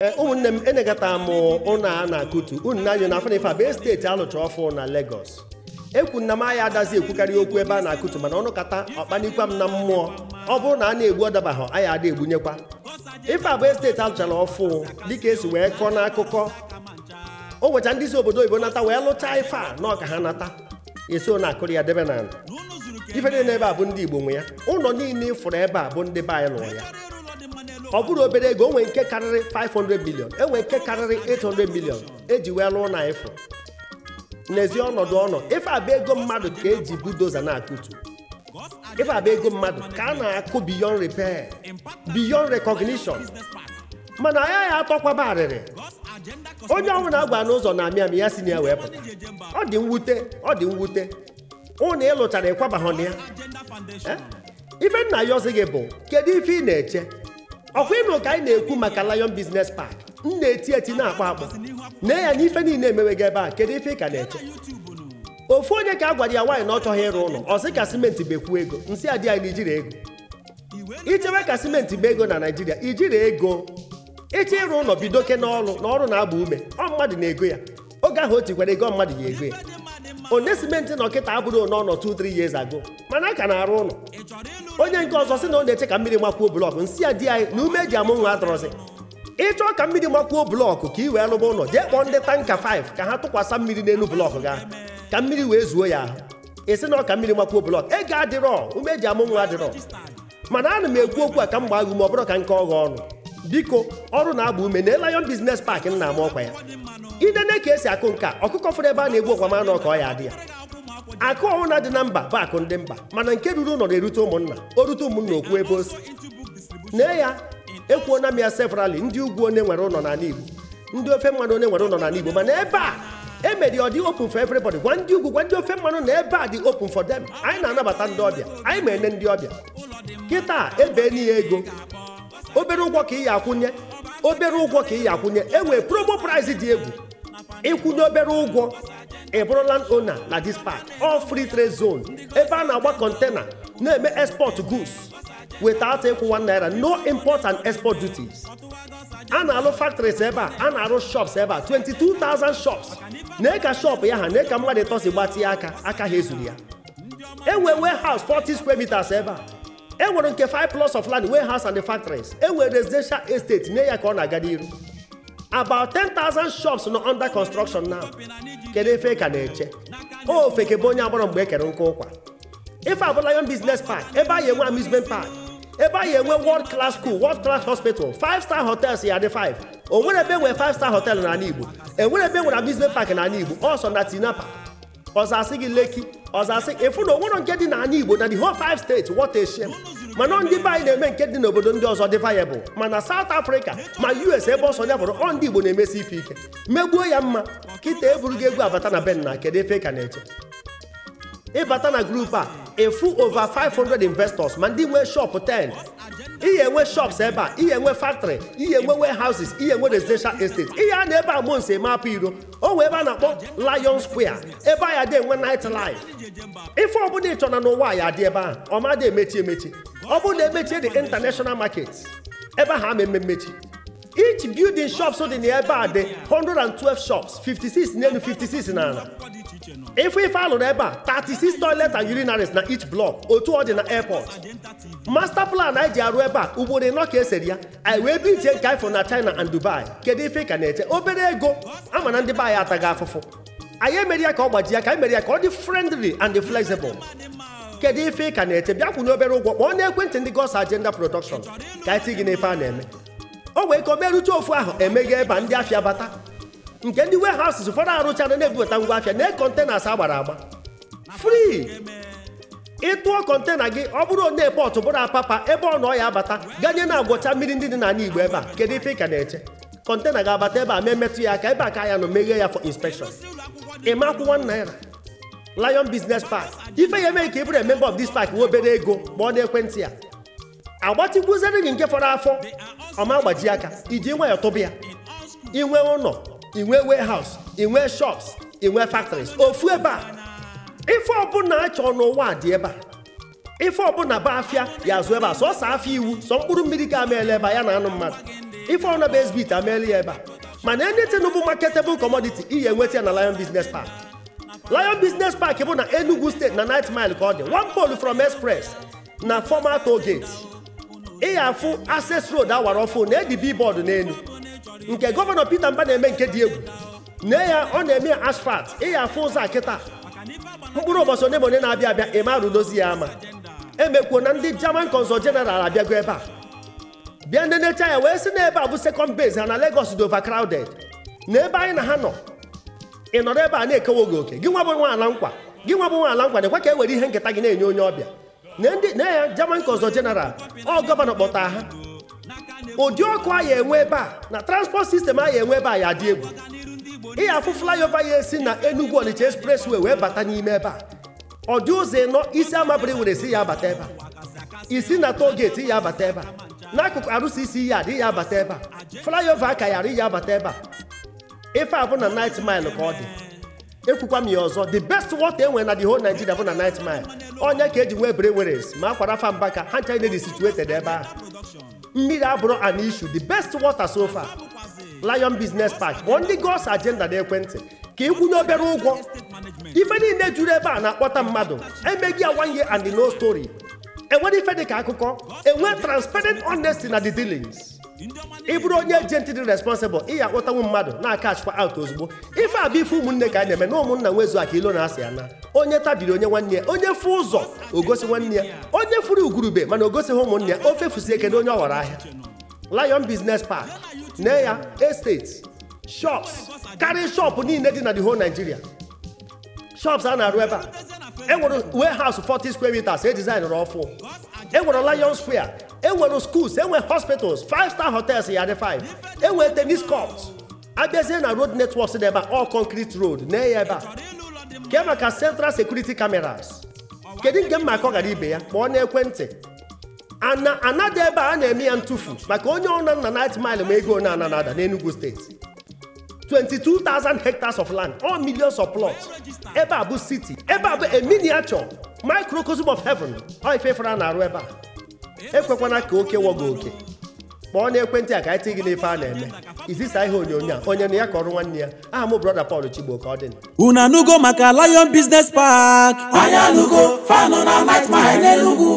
Eh, ụmụnne m enegata m ụnụ a na-akụtu unu na-anyụ na afanifa bụ steeti alụcha ọfụ na Lagos ekwu na m aya adazi ekwukarị okwu ebe a na-akụtu mana ọnụ kata ọkpanikwa m na mmụọ ọ bụrụ na a na-egbu ọdabaghọ agha ada egbunyekwa ife abụ esteeti alụchara ọfụ dịka esi wee kọọ n'akụkọ o nwecha ndị isi obodo oyibo nata wee lụchaa ife a na ọka ha nata eso na-akụrụ ya debe na ife niile ebe a bụ ndị Igbo nwe ya ụlọ niile ịfụrụ ebe a bụ ndị be anyị lụrụ ya ọ bụrụ obere ego onwe nke karịrị 500 million enwe nke karịrị 800 million eji wee lụọ na ifo. n'ezi ọnọdụ ọnọ ife abụ ego mmadụ ka eji budoza na-akụtu ife abụ ego mmadụ ka a na-akụ beyond repair beyond recognition mana anya ya atọkwaba arịrị onye ọnwụ na-agba n'ụzọ na amị amị ya si na ya wee pụta ọ dị mwute ọ dị mwute ụnụ ịlụchara ịkwabahụ na ya ife nna ya ọzi gị bụ kedu ife ị na-eche ọkwa ịnụ ka anyị na-ekwu maka Lion Business Park m na-eti eti na-akpọ akpọ nee ya ife niile emewego ebe a kedu ife ị ka na-eche ofu onye ka a gwara ya nwaanyị na ọ chọghị ịrụ ụlọ ọ sị ka simenti bekwu ego nsị adị anyị n'ijiri ego Ichewe ka simenti bụ ego na naijiria ijiri ego ịchọ ịrụ ụlọ bido oke n'ọrụ na ọrụ na-agba ume ọ mmadụ na-ego ya oge ahụ o tikwara ego mmadụ ya ego ya one simenti na ọkịta abụrụ one ọnọ 2 3 years ago mana a ka na-arụ ụlọ onye nke ọzọ sị na ọ na-eche ka mmiri makwuo blọkụ nsi ya di anyị na ume eji amụ nwa adọrọzi ịchọọ ka mmiri makwuo blọkụ ka ị wee lụba ụlọ jee kpọọ ndị tanka 5 ka ha tụkwasa mmiri n'elu blọkụ ga ka mmiri wee zuo ya ahụ esi na ọka mmiri makwuo blọkụ ego adịrọ ume eji amụ nwa adịrọ mana ana m ekwu okwu a ka m gbaa gị ume ọ bụrụ ka nke ọghọ ọnụ biko ọrụ na-agba ume na Lion bizines Park nna m ọkwa ya idene ka esi akụ nka ọkụkọ fụrụ ebe a na-egbu ọkwa mana ọka ọ ya adị ya akụ ọbụla dị na mba bụ akụ ndị mba mana nke ruru ụlọ na-erute ụmụnna o rute ụmụnna okwu ebe osi nee ya ekwuona m ya severally ndị ugwu onye nwere ụlọ n'ala Igbo ndị ofe mmanụ onye nwere ụlọ n'ala Igbo mana ebe a emeri ọ dị open for everybody gwa ndị ugwu gwa ndị ofe mmanụ na ebe a dị open for them anyị na-anabata ndị ọbịa anyị ma ene ndị ọbịa kịta ebe n'ihe ego obere ụgwọ ka ị ya akwụnye obere ụgwọ ka ị ya akwụnye e nwee promo price dị egwu ịkwụnye obere ụgwọ ịbụrụ land owner like this part, all free trade zone ebe a na-agba kọntena na-eme export goods without one naira no import and export duties And na-alụ factories ebe a a na-arụ shops ebe a shops na ka shop ya ha na ka mmadụ ịtọsi gbatịa aka aka ha ya enwe warehouse forty square meters ebe a enwere nke five plus of land warehouse and the factories enwere residential estate nye ya ka ọ na-aga n'iru about ten thousand shops nọ under construction now kedu efe ka na-eche ofe kebe onye agbọrọ mgbe e nkụ ụkwa ife abụla business park ebe anyị enwe amusement park ebe anyị enwe world class school world class hospital five star hotels ya dị 5 o nwere ebe enwere five star hotel n'ala Igbo enwere ebe enwere amusement park na Igbo ọsọ na tinapa ọzọ asị gị Lekki ọzọ asị ịfụ na onwere nke dị na Igbo na the whole five states what a shame mana ọ ndị be anyị na-eme nke dị n'obodo ndị ọzọ dị vayebụl mana South Africa ma US ebe ọsọ ya bụrụ ọ ndị Igbo na-emesi ife ike megbuo ya mma kịta gị egwu abata na ben na kedu efe ka na-eche ịbata na grupu a efu over 500 investors ma ndị nwee shop 10 ihe enwe shops ebe a ihe enwe factory ihe enwe warehouses ihe enwe residential estate ihe a na ebe a mụ nsi eme apụ iro o nwee ebe a na-akpọ Lion Square ebe ya dị enwe night life ife ọbụla ị na n'ụwa ya dị ebe ahụ ọma dị emechi emechi ọ bụrụ na emechie international market ebe ha ama mmechi each building shops dị na ebe a dị 112 shops 56 n'elu 56 n'ala efe ife alụrụ ebe a thirty-six toilet and urinaries na each block otu ọ dị na airport master plan anyị ji arụ ebe a ugboro ịnọ ka esere ya anyị wee bi iche nke ifo na china and dubai kedu ife ka na-eche obere ego ama na ndị be anyị ataghị afụfụ anyị emere ya ka ọ gbaji ya ka anyị mere ya ka ọ dị friendly and flexible kedu ife ka na-eche bịa kwụ n'obere ụgwọ kpọọ n'ekwentị ndị gos agenda production ka anyị ti gị n'ife a na-eme o wee ka o merụcha ofu ahụ emeghe ebe a ndị afịa bata nke ndị warehouses ụfọdụ arụchara na-ebubata ngwa afịa na kọntenas agbara agba Frii. ịtụọ kọntena gị ọ bụrụ onye pọtụ bụrụ apapa ebe ọ nọ ya abata ganye na agwọcha mmiri ndị dị n'ala igbo ebe a kedu ife ka na-eche kọntena ga-abata ebe a ma emetụ ya aka ebe a ka ya nọ meghe ya for inspection ịma akwụkwọ naira lion business park ife ya emeghị ka ị bụrụ member of this pak obere ego ma ọ na-ekwentị ya agbatịkwuzere gị nke fọrọ afọ ọma gbaji aka iji nwayọ tụba ya inwe ụlọ inwe warehouse inwe shops inwe factories ofu ebe a ife ọbụla a n'ụwa dị ebe a ife ọbụla ba afịa ya azụ ebe a sọsọ afịa iwu sọ mkpụrụ mmiri ka ameela ebe a ya na anụ mmadụ ife ọna bụ ezbit ameela ya ebe a mana anything e bụ marketable commodity ihe enweta ya na Lion Business Park Lion Business Park bụ na Enugu steeti na nit Mile ka ọ dị one pole from express na former toll gate afụ access road awara ọfụ na edi billboard n'elu nke gọvanọ Peter Mba na-eme nke dị egwu nne ya ọ na-eme asfalt ịya afụ ụzọ a mkpụrụ ụbọchị onye na onye na-abịa abịa ịmarụ dozi ya ama emekwuo na ndị German consul general abịago ebe a bịa ndị necha ya wee sị na ebe a bụ second base ha na Lagos dị overcrowded na ebe anyị na ha nọ ị nọrọ ebe a na-ekewo gị oke gị nwa bụ nwa ala nkwa gị nwa bụ nwa ala nkwa dịkwa ka e were ihe nketa gị na-enye onye ọbịa na ya German consul general ọ gọvanọ kpọta ha ụdị ọkụ ya enwe ebe a na transport sistem ya enwe ebe a ya dị egwu ị afụ ya esi na Enugu Ọnịcha expressway wee bata n'ime ebe a ọ dị ụzọ ịnọ isi amabiri were si ya abata ebe a isi na toll gate ya abata ebe a n'akụkụ arụsị isi ya adị ya abata ebe a flyover ka ya arị ya abata ebe a ife abụ na nit mile ka ọ dị ekwukwa m ya ọzọ the best water enwere na the whole Nigeria bụ na night mile onye ka eji nwee breweries ma akwara fa mbaka ha ncha na-edi situated ebe ahụ mmiri abụrụ issue the best water so far Lion Business Park kpọọ ndị gos agenda na ekwentị ka ịkwụnye obere ụgwọ ife niile juru ebe a na-akpọta mmadụ emeghị ya one year and no story enwere ife dị ka akụkọ enwe transparent honesty na the dealings ị bụrụ onye ejenti dị responsible ị ya akpọtanwu mmadụ na aka achịkwa out ozugbo ife a bụ ife ụmụnne ka a na-eme na ụmụnna nwezu aka ilo na-asị ya na onye tabiri onye nwanne ya onye fụ ụzọ ogosi nwanne ya onye furu ugurube mana ogosighị ụmụnne ya ofe fusi eke na onye ọ ghọrọ ahịa lion business park na ya estate karịa shop niile dị na the whole Nigeria shọps a na-arụ ebe a enwere haus 40 skwe meters e designụrụ ọfụ enwere lion square enwere schools enwe hospitals five star hotels ya dị five enwe tenis court abịazie na road networks dị ebe all concrete road na ya ebe a ke maka central security cameras kedu nke mma ka ọ gara ibe ya na-ana anada ebe a na-eme ya ntụfu maka onye ọrụ na nna night mile ma ego na ananada enugu steeti 22,000 hectares of land all millions of plots ebe a bụ city ebe a bụ a miniature microcosm of heaven ọ ife fara na-arụ ebe a ekwekwana ka oke wọgo oke kpọọ n'ekwentị a ka anyị tị gị n'ife a na-eme izisa ihe onyonyo a onye na ya kọrọ nwanne ya aha m brọda Paul Chigbo ka ọ dị unu anụgo maka Lion Business Park Anya anụgo fanụ na night mile n'Enugu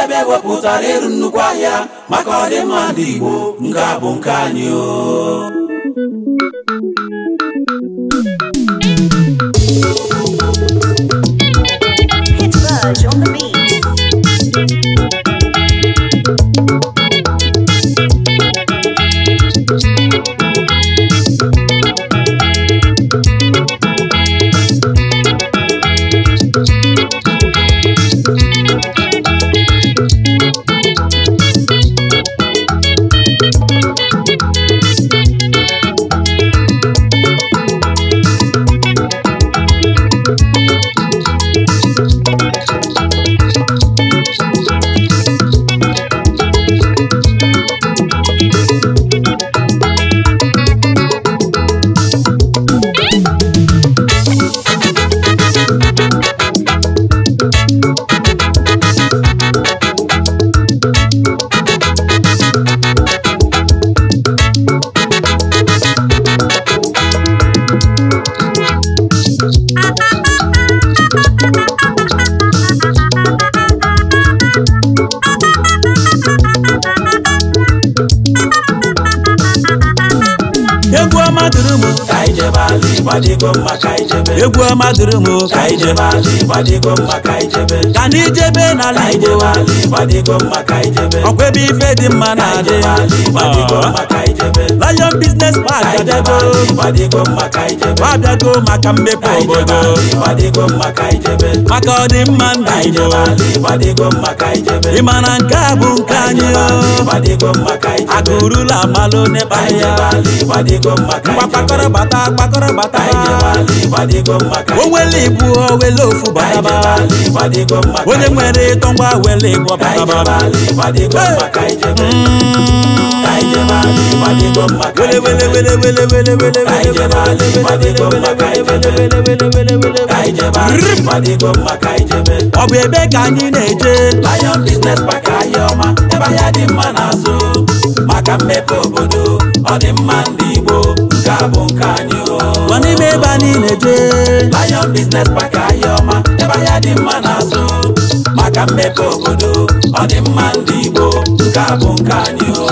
ebe ewepụtara ịrụ nnukwu ahịa maka ọdịmma ndị Igbo nke a bụ nke anyị o ọma dịrị m ka anyị jebe ala ịgba dịgo mma ka anyị jebe egwu ọma dịrị m ka anyị jebe ala ịgba dịgo mma ka anyị jebe ka na ijebe n'ala igbo ọkwa ebe ife dị mma na-adị ah. lion business park adego abịago maka mmepe obodo maka ọdịmma nna igbo ịma na nke a bụ nke anyị oh? akụrụla amalụ n'ebe ahịa gbakọrọ bata gbakọrọ bata owele ibu owele ofu bataba onye nwere ịtọ ngwa wele ịgwọ bataba wele wele wele wele wele wele ọ bụ ebe ka anyị na-eje lion maka mmepe obodo ọ dị mma ndị bụ nke anyị o nọ n'ime ebe a niile jee Lion Business Park Ahioma ebe ahịa dị mma na-azụ maka mmepe obodo ọ dị mma ndị Igbo nke a bụ nke